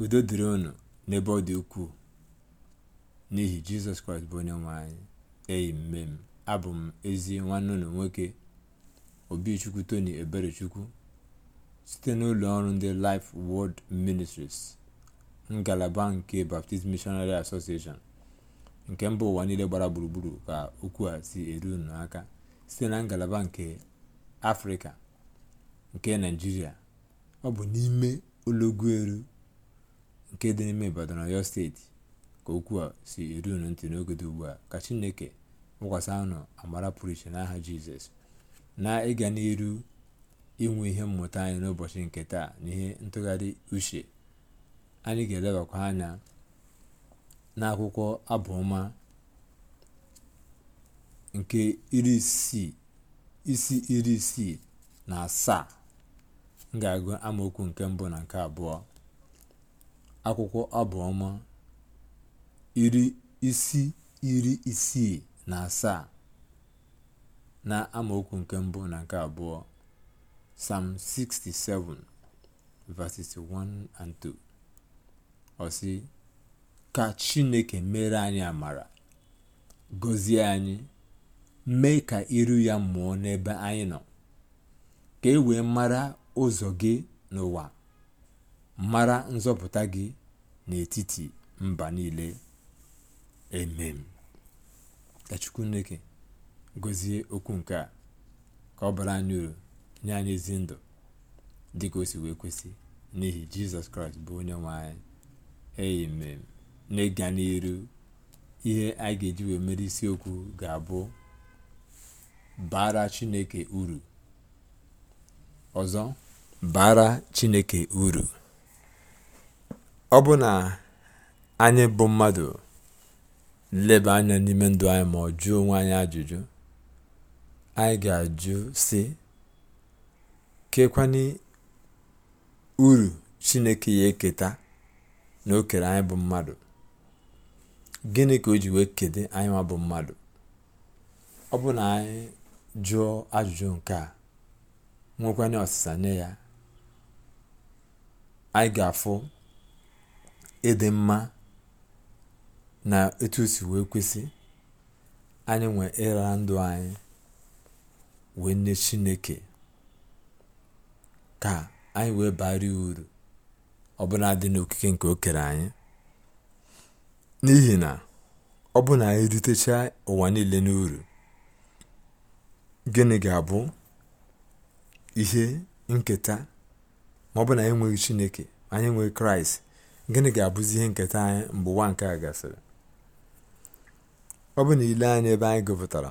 udo dịrị unu n'ebe ọ dị ukwuu n'ihi jizọs kraịst bụ onye nwe anyị eyi mme abụ m ezi nwanne unu nwoke obichukwu tony eberechukwu site n'ụlọ ọrụ ndị life world ministries ngalaba nke baptist missionary association nke mba ụwa niile gbara gburugburu ka okwu a si eru unu site na ngalaba nke afrịka nke naijiria ọ bụ n'ime olọgwuelu nke dị n'ime Ibadan Ọyọ steeti ka okwu a si eru unu ntị n'oge dị ugbu a ka Chineke wụkwasị anụ amara pụrụ iche n'aha Jizọs na ịga n'iru inwe ihe mmụta anyị n'ụbọchị nke taa na ihe ntụgharị uche anyị ga-elebakwa anya n'akwụkwọ abụọma nke iri isi iri isii na asaa m ga-agụ amaokwu nke mbụ na nke abụọ akwụkwọ abụọma iri isi iri isii na asaa na amaokwu nke mbụ na nke abụọ Psalm 67 verses 1 and 2 ọ ka Chineke mere anyị amara gozie anyị mee ka iru ya mụọ n'ebe anyị nọ ka e wee mara ụzọ gị n'ụwa mara nzọpụta gị n'etiti mba niile emem ka chukwuneke gọzie okwu nke a ka ọ bara anyị uru nye anyị ezi ndụ dị ka o si wee kwesị n'ihi jizọs kraịst bụ onye nwe anyị amen n'ịga n'iru ihe a ga-eji wee mere isiokwu ga-abụ bara chineke uru ọzọ bara chineke uru ọ bụ na anyị bụ mmadụ leba anya n'ime ndụ anyị ma ọ jụọ onwe anyị ajụjụ anyị ga-ajụ si kekwani uru chineke ya eketa na o kere anyị bụ mmadụ gịnị ka o ji wee kede anyị ma bụ mmadụ ọ bụ na anyị jụọ ajụjụ nke a nwekwanye ọsịsa nye ya anyị ga-afụ ịdị mma na etu wee kwesị anyị nwe ịra ndụ anyị wee nye chineke ka anyị wee bari uru ọ bụla dị n'okike nke okere anyị n'ihi na ọ bụ na anyị ụwa niile n'uru gịnị ga-abụ ihe nketa ma ọ bụ na anyị nweghị chineke anyị nwee kraịst gịnị ga-abụzi ihe nketa anyị mgbe ụwa nke a gasịrị ọ bụ na ile anyị ebe anyị gụpụtara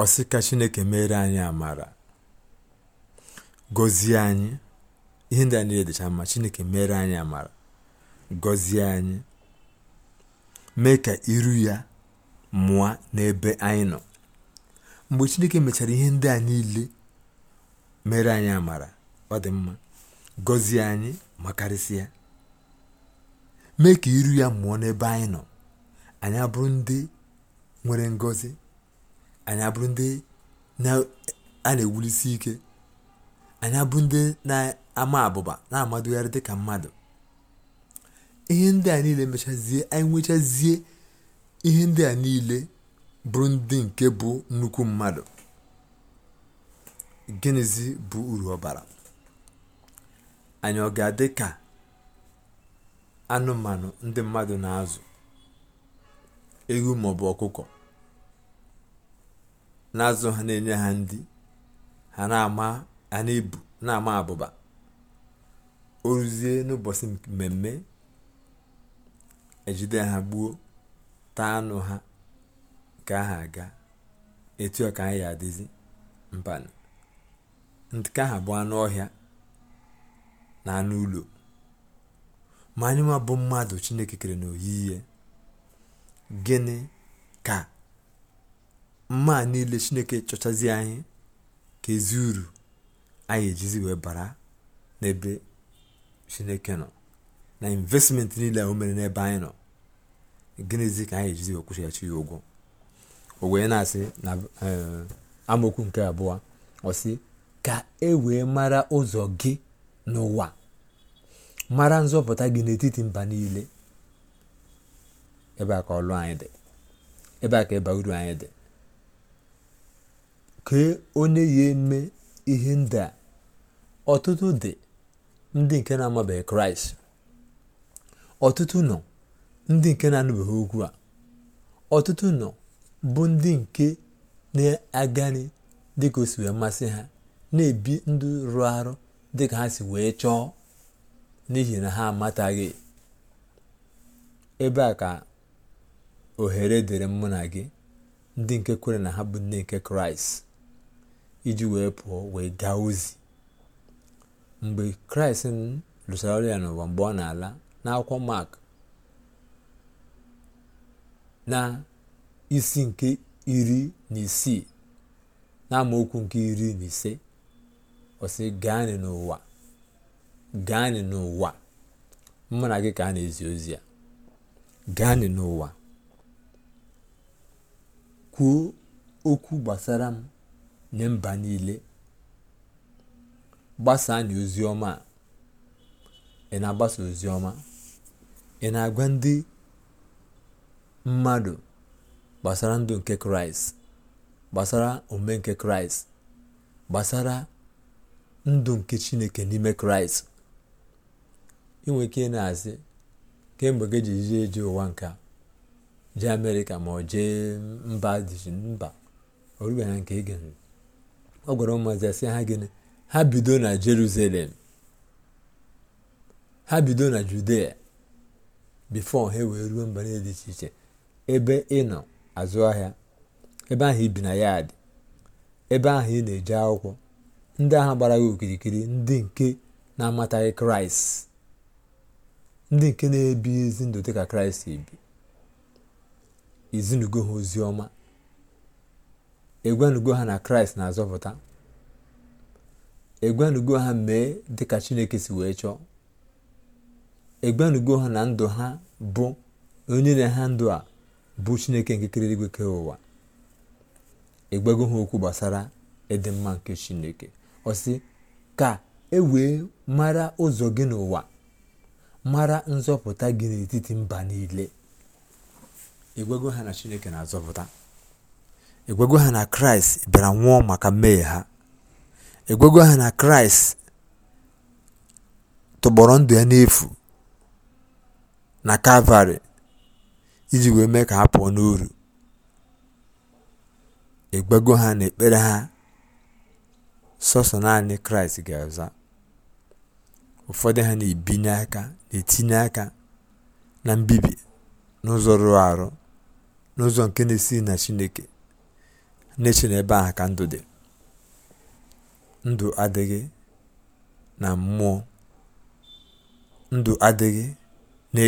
ọsị ka chineke mere anyị amara gọzie anyị ihe ndị a niile dịcha mma chineke mere anyị amara gọzie anyị mee ka iru ya mụa n'ebe anyị nọ mgbe chineke mechara ihe ndị a niile mere anyị amara ọ dị mma gọzie anyị ma mee ka iru ya mụọ n'ebe anyị nọ anyị abụrụ ndị nwere ngozi anyị abụrụ ndị a na-ewulisi ike anyị abụ ndị na-ama abụba na-amadogharị dịka mmadụ ihe ndị a niile mechazie anyị nwechazie ihe ndị a niile bụrụ ndị nke bụ nnukwu mmadụ gịnịzi bụ uru ọbara anyị ọ ga-adị ka anụmanụ ndị mmadụ na-azụ ewu maọbụ ọkụkọ na-azụ ha na-enye ha ndị ha na-ama ha na-ebu na-ama abụba oruzie n'ụbọchị mmemme ejide ha gbuo taa anụ ha ka aha aga etu ọ ka anyị ya adịzi mbanụ nke ahụ bụ anụ ọhịa na anụ ụlọ ma anyị nwa bụ mmadụ chineke kere n'oyiyi gịnị ka mma niile chineke chọchazi anyị ka ezi uru anyị ejizi wee bara n'ebe chineke nọ na investment niile o mere n'ebe anyị nọ gịnịzi ka anyị ejizi wee kwụchighachi ya ụgwọ na-asị na eh, amaokwu nke abụọ ọ ka e wee mara ụzọ gị n'ụwa mara nzọpụta gị n'etiti mba niile ebe a ka ọlụ anyị dị a ka ịba uru anyị dị kee onye ya eme ihe ndị a ọtụtụ dị ndị nke na-amabeghị kraịst ọtụtụ nọ ndị nke na-anụbeghị okwu a ọtụtụ nọ bụ ndị nke na-agani dịka o si mmasị ha na-ebi ndụ rụrụ arụ dị ka ha si wee chọọ n'ihi na ha amataghị ebe a ka ohere dịrị mụ na gị ndị nke kwere na ha bụ nne nke kraịst iji wee pụọ wee gaa ozi mgbe kraịst lụsara ọrụ ya n'ụwa mgbe ọ na-ala n'akwụkwọ mak na isi nke iri na isii na amaokwu nke iri na ise ọ sị gaanị n'ụwa gaanị n'ụwa mụ na gị ka a na-ezi ozi ya gaanị n'ụwa kwuo okwu gbasara m nye mba niile gbasaa na ozi ọma a ị na-agbasa ozi ọma ị na-agwa ndị mmadụ gbasara ndụ nke kraịst gbasara ome nke kraịst gbasara ndụ nke chineke n'ime kraịst inwe ike na-asị kemgbe gị ji jie eje ụwa nke jee amerịka ma ọ jee mba dịji mba ọ rube ha nke ege ọ gwara ụmụazị asị ha gịnị ha bido na jerusalem ha bido na judea bifo ha wee ruo mba niile dị iche iche ebe ị nọ azụ ahịa ebe ahụ ibi na yaadị ebe ahụ ị na-eje akwụkwọ ndị agha gbara gị okirikiri ndị nke na-amataghị kraịst ndị nke na-ebi ezi ndụ dịka kraịst ebi ezinugo ha ozi ọma egwanugo ha na kraịst na-azọpụta egwanugo ha mee dịka chineke si wee chọọ egwanugo ha na ndụ ha bụ onye na ha ndụ a bụ chineke nke kere igwe ụwa egbego ha okwu gbasara ịdị mma nke chineke sị ka e wee mara ụzọ gị n'ụwa mara nzọpụta gị n'etiti mba niile egwego ha na chineke na-azọpụta e ha na kraịst bịara nwụọ maka mmehie ha egwego ha na kraịst tụgbọrọ ndụ ya n'efu na kalvarị iji wee mee ka ha pụọ n'uru egwego ha na ekpere ha sọsọ naanị Kraịst ga-aza ụfọdụ ha na-ebinye aka na-etinye aka na mbibi n'ụzọ rụrụ arụ n'ụzọ nke na esi na Chineke na-eche na ebe ahụ ka ndụ dị ndụ adịghị na mmụọ ndụ adịghị na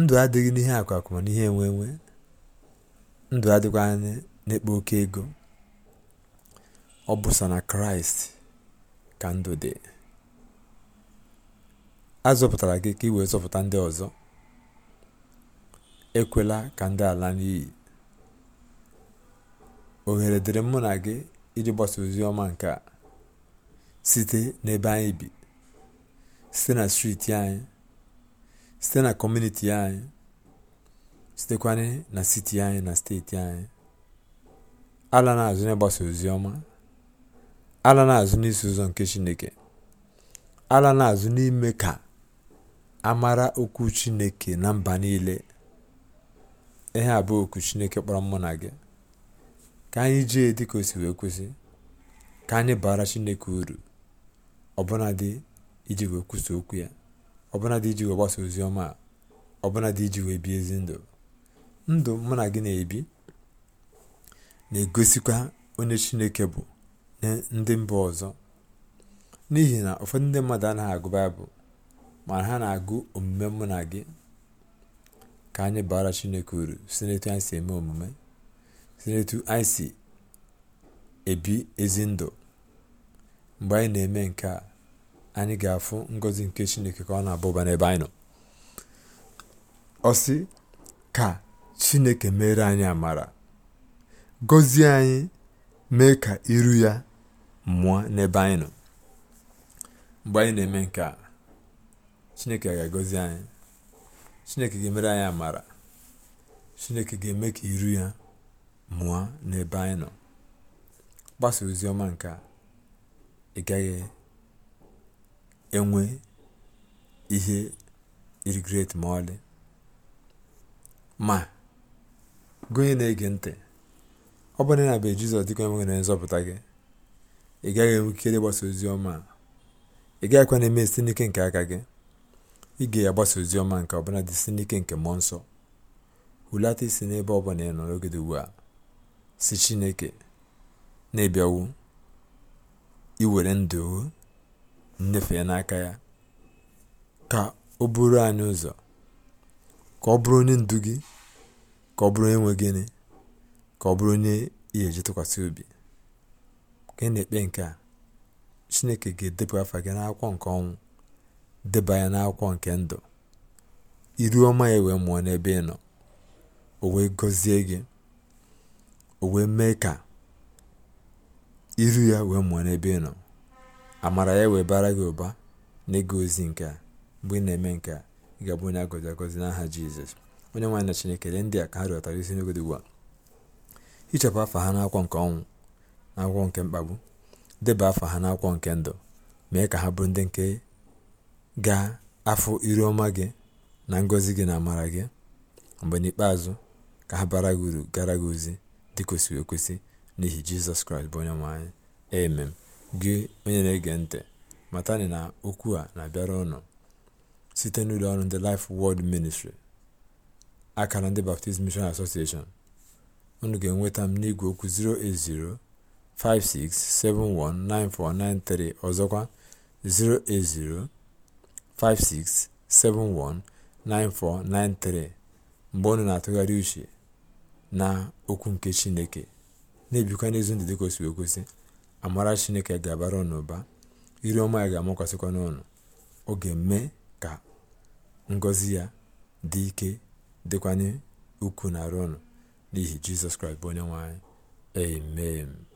ndụ adịghị n'ihe akwakwa na ihe enwe ndụ adịghị anya oke ego ọ bụsa na kraịst ka ndụ dị a gị ka ị zọpụta ndị ọzọ ekwela ka ndị ala n'iyi ohere dịrị mụ na gị iji gbasa ozi ọma nke a site n'ebe anyị bi site na striti anyị site na kọmuniti anyị sitekwana na siti anyị na steeti anyị ala na-azụ na ozi ọma ala n'azụ n'isi ụzọ nke Chineke, ala n'azụ n'ime ka a mara okwu Chineke na mba niile. Ihe a bụ okwu Chineke kpọrọ mụ na gị ka anyị jee ka o si wee kwesị ka anyị bara Chineke uru ọbụnadị iji wee kwụsị okwu ya ọbụnadị iji wee gbasa ozi ọma ọbụnadị iji wee bie ezi ndụ ndụ mụ na gị na-ebi na-egosikwa onye Chineke bụ ndị mba ọzọ n'ihi na ụfọdụ ndị mmadụ anaghị agụ baịbụl mana ha na-agụ omume mụ na gị ka anyị bara chineke uru si n'etu anyị si eme omume si n'etu anyị si ebi ezi ndụ mgbe anyị na-eme nke a anyị ga-afụ ngọzi nke chineke ka ọ na-abụba n'ebe anyị nọ ọ sị ka chineke mere anyị amara gọzie anyị mee ka iru ya mụọ n'ebe anyị nọ mgbe anyị na-eme nke a chineke ga-agọzi anyị chineke ga-emere anyị amara chineke ga-eme ka iru ya mụọ n'ebe anyị nọ gbasa ozi ọma nke a ị gaghị enwe ihe irigret ma ọlị ma gụnyere na-ege ntị ọ bụrụ na be Jizọs dịka onye nwere nzọpụta gị ị gaghị enwe ikere ịgbasa ozi ọma ị ị gaghịkwa na-eme site n'ike nke aka gị ị ya gbasa ozi ọma nke ọbụla dị site n'ike nke mmụọ nsọ hulata isi n'ebe ọ bụla ị nọ n'oge ugbu a si Chineke na-ebiawu iwere ndụ ya n'aka ya ka ọ bụrụ anyị ụzọ ka ọ bụrụ onye ndu gị ka ọ bụrụ onye nwe gịnị ka ọ bụrụ onye ị ga-eji tụkwasị obi ka ị na-ekpe nke a chineke ga-edepụ afa gị n'akwụkwọ nke ọnwụ deba ya n'akwụkwọ nke ndụ iru ọma ya wee mụọ n'ebe ị nọ o wee gọzie gị o wee mee ka iru ya wee mụọ n'ebe ị nọ amara ya wee bara gị ụba n'ịga ozi nke a mgbe ị na-eme nke a ị ga-abụ onye agọzi agọzi n'aha jizọs onye nwaanyị na chineke ndị a ka ha rịọtara isi n'oge dị ugbu a hichapụ afa ha n'akwọ nke ọnwụ na akwụkwọ nke mkpagbu deba afa ha n'akwọ nke ndụ mee ka ha bụrụ ndị nke ga afọ iru ọma gị na ngọzi gị na amara gị mgbe n'ikpeazụ ka ha bara gị uru gara gị ozi dị kwesịrị ekwesị n'ihi jizọs kraịst bụ onye nwe anyị emem gị onye na-ege ntị matani na okwu a na-abịara ọnụ site n'ụlọ ọrụ ndị Life Word ministri akara ndị Baptist Mission unu ga-enweta m n'igwe okwu 08056719493 ọzọkwa 08056719493 mgbe unu na-atụgharị uche na okwu nke chineke na-ebikwa n'ezi ndị dịka o amara chineke ga-abara unu ụba iri ọma ya ga-amakwasịkwa n'ụnụ ọ ga-eme ka ngọzi ya dị ike dịkwanye ukwuu na ọnụ. n'ihi jizọs kraịst bụ onye anyị amen